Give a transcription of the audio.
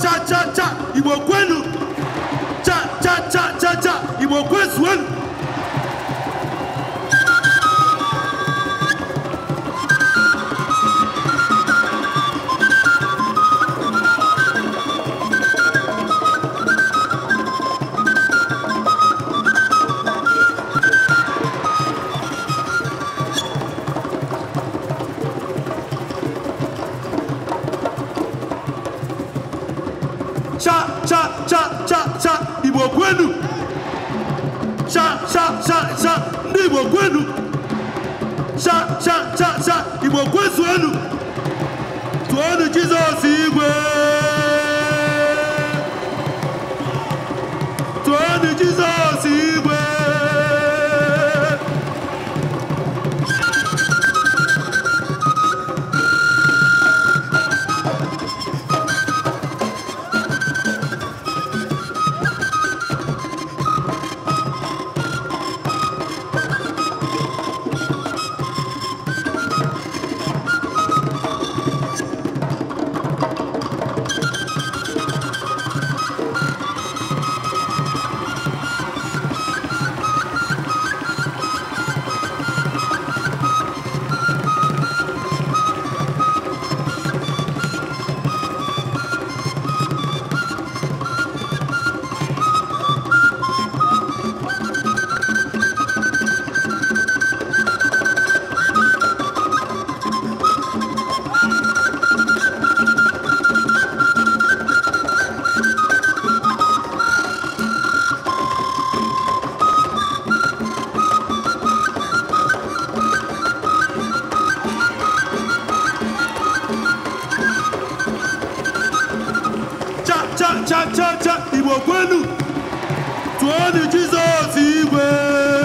cha cha cha go kwenu cha cha cha cha cha go kwezuenu cha cha Igbo kwezuenu tụọnụ Jizọs igwe chacha cha cha Igbo kwenu tụọnụ Jizọs